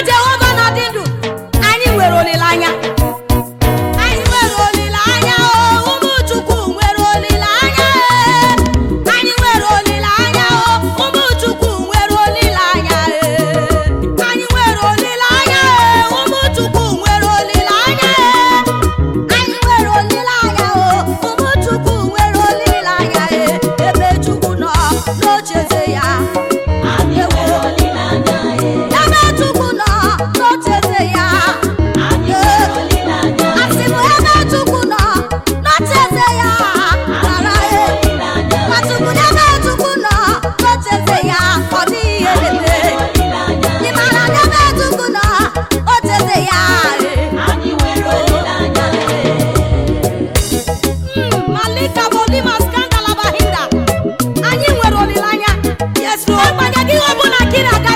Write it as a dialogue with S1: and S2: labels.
S1: mgbe Jehova na-adị ndụ anyị nwere olileanya ihe ọbụla kiri aga